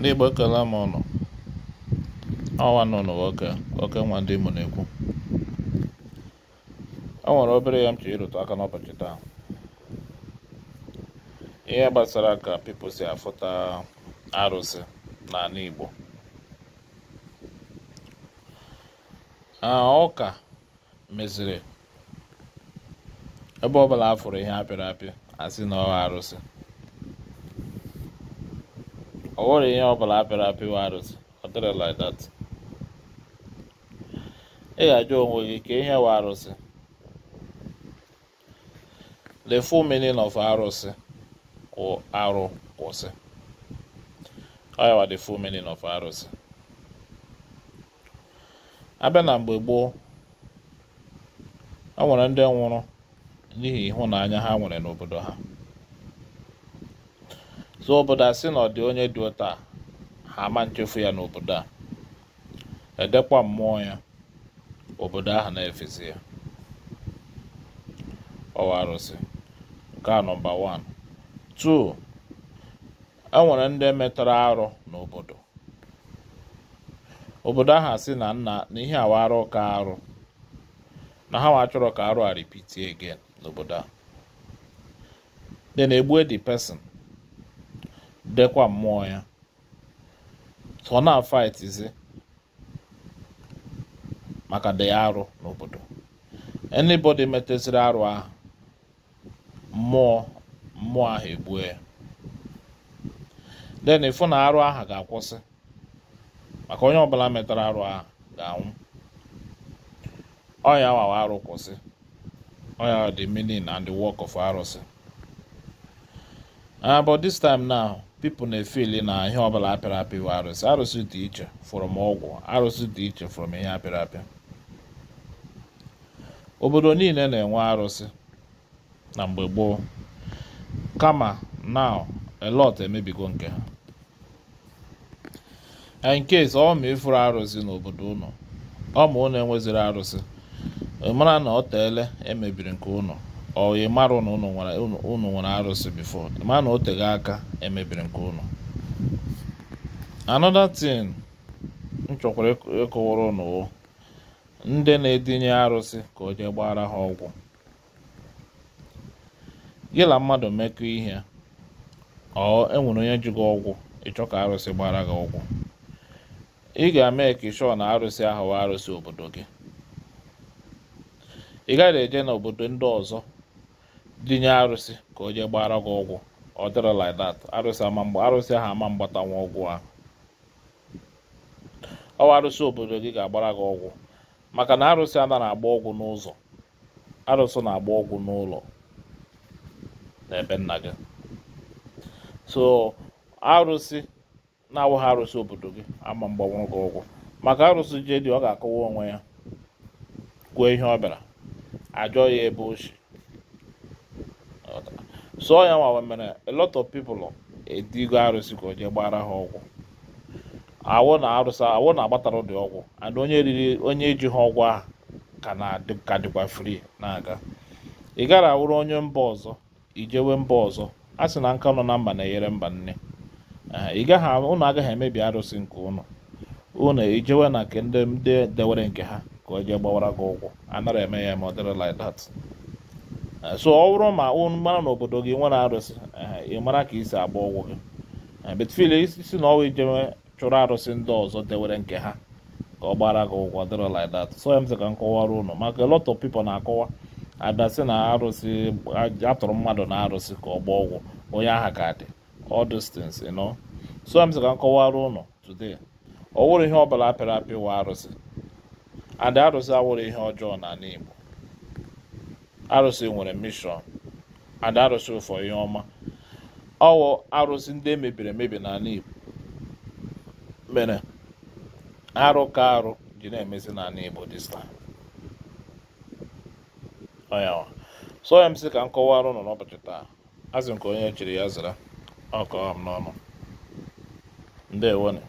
ndị Igbo ekele m ụnụ ọnwa nụnụ nwoke oke nwa ndị Imo na-ekwu o e nwere obere ya m chọrọ ịrụtụ aka n'ụbọchị taa ihe gbasara ka people si afụta arụsị n'ala Igbo ụka meziri ebe ọ bụla a fụrụ ihe apịrị apị asị na ọ arụsị ọ wụrụ ihe ọ bụla apịrị apị wa arụsị ọ dịrị like that ị ga-ajụ onwe gị ka ihe wa arụsị the full meaning of arụsị kwụrụ arụ kwụsị ọ yawa the full meaning of arụsị abịa na mgbe gboo ọ nwere ndị nwụrụ n'ihi ịhụnanya ha nwere n'obodo ha so obodo a sị na ọ dị onye dị ụta ha ama nchefu ya n'obodo a edekwa mmụọ ya obodo ahụ na-efesi ya ọwa arụsị nke a nọmba 1 2 enwere ndị metara arụ n'obodo obodo ahụ asị na nna na ihe awa arụ ka arụ na ha nwa ka arụ a repeat again n'obodo a na egbu the person dekwa mmụọ ya so ọ na-afaitizi maka dị arụ n'obodo anybody metesiri arụ ahụ mmụọ mmụọ ahụ egbue ya then na arụ ahụ ga-akwụsị maka onye ọbụla metara arụ ahụ ga-anwụ ọya wawa arụ kwụsị ọya dị meaning and the work of arụsị uh, but this time now pipo na-efeli na ihe ọbụla apịrị apị bụ arụsị arụsị dị iche fọrọm ọgwụ arụsị dị iche fọrọm ihe apịrị apị obodo niile na-enwe arụsị na mgbe gboo kama na a emebigo nke ha in case ọ ịfụrụ arụsị n'obodo ụnụ enweziri arụsị ịmara na ọ emebiri nke ụnụ ọ mara nwere arụsị bifo ma na o aka emebiri nke unu anọda tin m chọkwara ịkọwara unu ndị na-edinye arụsị ka o jee gbara ha ọgwụ gị na mmadụ mekọ ihe ọ enwere onye ji gị ọgwụ ịchọ ka arụsị gbara gị ọgwụ ị ga-eme ka na arụsị ahụ arụsị obodo gị ị gaghị eje n'obodo ndị ọzọ dinye arụsị ka o jee gbara gị ọgwụ ọ dịrị like that arụsị ama mgba arụsị ahụ ama mgbatanwa ọgwụ ahụ ọwa arụsị obodo gị ga-agbara gị ọgwụ maka na arụsị a na-agba ọgwụ n'ụzọ arụsị na-agba ọgwụ n'ụlọ n'ebe nna gị so arụsị na-awụghị arụsị obodo gị ama mgbanwe gị ọgwụ maka arụsị jedi ọ ga akụwa onwe ya kwuo ihe ọ bịara ajọ ya ebe ochie sụọ ya nwa mere a lot of people edigo arụsị ka o jee gbara ha ọgwụ awụ na arụsị awụ na agbatara ụdị ọgwụ and onye riri onye ji ha ọgwụ ahụ ka na-ka dịkwa free na-aga ị gara awụrụ onye mba ọzọ ijewe mba ọzọ a sị na nka nọ na mba na-enyere mba nne ị gaghị ụnụ agaghị emebi arụsị nke ụnụ ụnụ ijewe na nke ndị dewere nke ha ka o jee gbawara gị ụgwọ anara eme ya ma ọ dịrị like that Eh, so ọ bụrụ ma mara na obodo gị nwere arụsị eh, ị mara ka isi agba ọgwụ gị eh, betfil isi na ọwa ijeme chụrụ arụsị ndị ọzọ dewere nke ha ka ọ gbara gị ụgwọ dịrị like that so emzi ka m kọwara unu maka lot of people na-akọwa adasị na arụsị atụrụ mmadụ na arụsị ka ọ gba ọgwụ onye aha ka dị all these so you know so emzi ka m kọwara today ọ wụrụ ihe ọ bụla apịrị apị wa arụsị adị arụsị awụrụ ihe ọjọọ n'ala Igbo arụsị nwere mishọn and arụsị ụfọ ihe ọma ọwụ arụsị ndị e mebiri emebi n'ala igbo mere arụ ka arụ ji na-emezi n'ala igbo dista time. so ya m sị ka nkọwa arụ nọ n'ụbọchị taa azụ nke onye chiri ya zara ọkọ m n'ọnụ ndewone